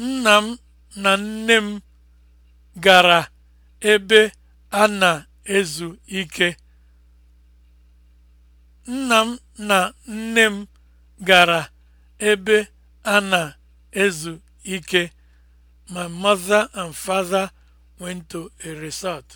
Nna m na nne m gara ebe a na-ezu ike. Nna m na nne m gara ebe a na-ezu ike. My mother and father went to a resort.